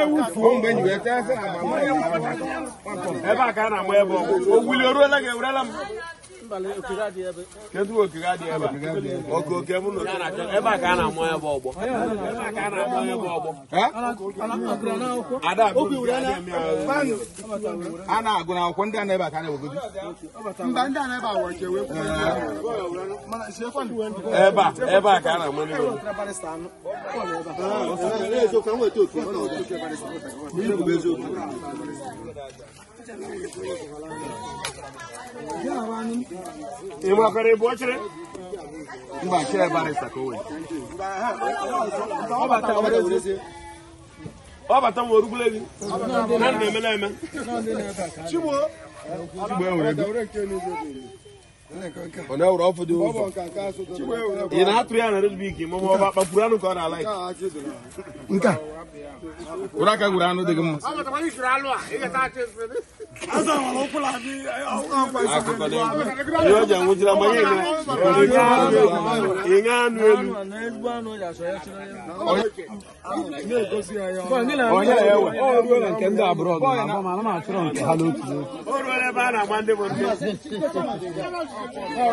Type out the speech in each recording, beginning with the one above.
ebe a ka a na-ama ebe ọgwụ o wuli o ruola gị ewurela m kedu okiri adị ebe a oke oke m nọ ebe a ka a na-amụ ya bụ ọgbọ a na-agụ na akwụkwọ ndị a na-ebe a ka a na-ewegodi mba ndị a na-ebe a were chewe ebe a ebe a ka a na-amụ ndị Yara ni ị makwara ebe ochere mba chere barista ka o wee ọ bata nwe orugwule gị na na-eme na-eme chigbo chigbo e nwere ego ona wura ofu di ụzọ ị na-atụ ya na redbik ma ọ kpapụrụ anụ ka ọ na-alaik nka wura aka gwuru anụ dị gị mma eh, akụkọ dị ihe o ji anwụjira ma ihe ịṅa anụ elu onye ya ewe ọ ruo na nke ndị abụrọ ọ na-achọrọ nke ha n'otu o ruo ebe a na-agba ndị bụ ndị Ọ̀gẹ́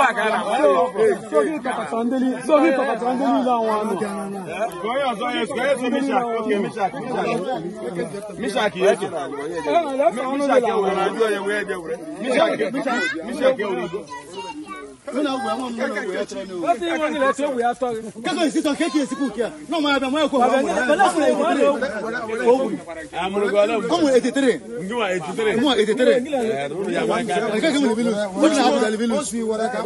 bàkà rà. Sókè kàkàtàndélé sókè kàkàtàndélé làwọn àná. Gọ́yọ̀ sọ́yẹ̀ sọ́yẹ̀ sí Mísàkì ókè Mísàkì Mísàkì ẹ̀jẹ̀. Mísàkì ẹ̀wòrán ẹ̀jẹ̀ wẹ̀rẹ̀. Mísàkì ẹ̀wòrán ẹ̀jẹ̀ wẹ̀rẹ̀ lọ́nà wẹ̀ wọ́n lọ́nà wẹ̀ tẹ̀lé ní o. wọ́n ti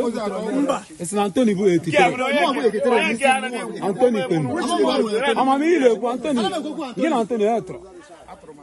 wọ́n antoni bú ètè antoni pẹ̀lú. ọmọ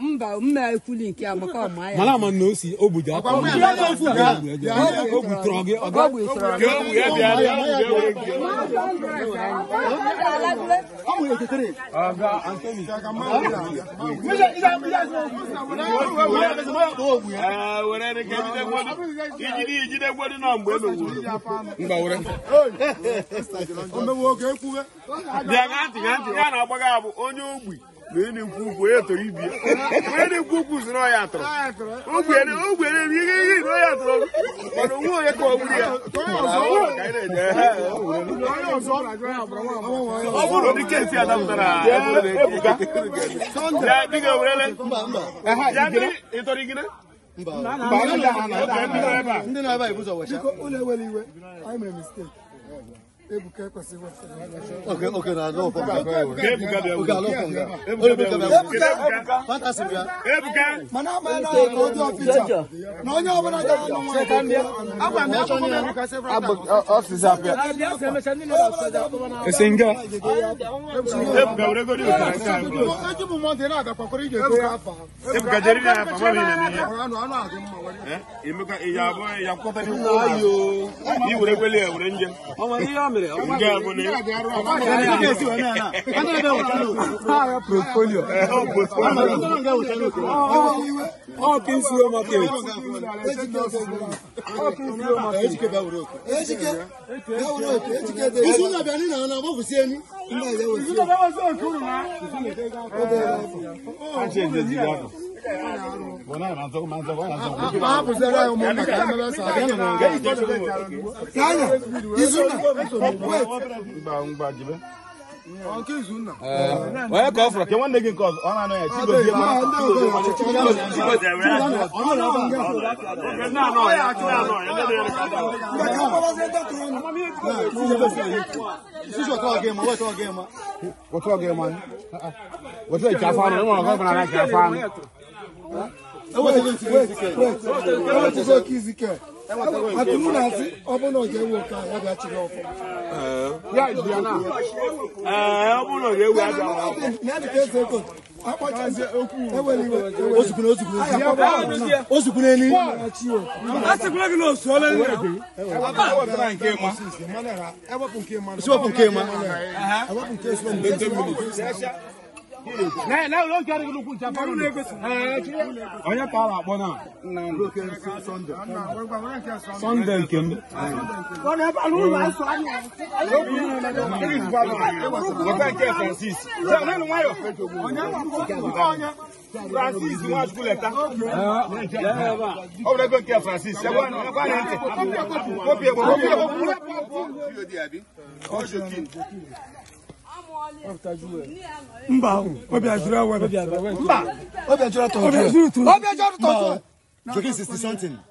mba mma ekwuli nke a ọma ya mana ama na o o ga ya bịa bịa ijidegwe ya na mgbe bịa ga ntị ga ya onye ogbi na-eni nkwu onye tọrọ ibi ya onye na-ekwu okwu si na ọya atọrọ ogbere ogbere ihe ihe na ọya atọrọ mana onwe onye ka ọ gburu ya ọ bụrụ ụdị kesi a dapụtara ya dịga werele ya gịnị ịtọrọ gịnị ndị na-ebe a ibu zọ wecha ụlọ ewere iwe anyị mere mistake Ebuka kwesịrị Oke oke na no kwa kwa. Ebuka bịa. Oke alo kwa. Ebuka bịa. Ebuka. Fantasy bịa. Ebuka. Mana ma na ko do picture. Na onye ọbụla ga anụ nwa. Setan bịa. Agwa m achọ nye Ebuka se fra. Agba office abịa. Esenga. Ebuka were go di o tan ka. Eji bu mo de na abịa kwakwara ije to afa. Ebuka jeri na afa wa ni na ni. Anu anu adị mma wa. Eh? Emeka iya abọ ya kwọta ni. Ayo. Ni were kwele were nje. Ọmọ ihe Portfolio. All things you market. All things you market. Educate that work. Educate. That work. Educate. This is not banana. I'm not wọ́n kọ́ fún ọ kí wọ́n nẹ́gìn kọ́ ọ̀nà náà tí kò díẹ̀ mọ́ tí kò díẹ̀ mọ́ ọ̀nà náà wọ́n kọ́ ọ̀nà náà wọ́n kọ́ ọ̀nà náà wọ́n kọ́ ọ̀nà Kizike. Ati muna ati ọmọ náà jẹ wo ka yàgbé àti ní ọfọ. Yà ìgbìyà náà. Ọmọ náà jẹ wo àgbà wà. Ní àti kéé sèkò, akpọ̀jọ ṣe okú. Ewe ni iwe. Osùkú náà osùkú náà. Osùkú náà ni. Asìkú náà kì ní oṣù ọlẹ́ ní ẹ̀kọ́. Ẹwọ́pù nke ma. Ẹwọ́pù nke ma. Ẹwọ́pù nke ma. Ẹwọ́pù nke ma. Ne ne o kari kulu kun jafa lu. Onye ka ala akpọ naa. Sọnde nke m. Francis Nwachukwu leta. Ọ bụrụ ego nke Francis. Ekwe anyị ntị. Kopi egbe. Kopi egbe. Kopi egbe. Kopi egbe. mba ahụ ọbịa jụrụ ewe mba ọbịa jụrụ tọjụ ọbịa jụrụ tọjụ 60 something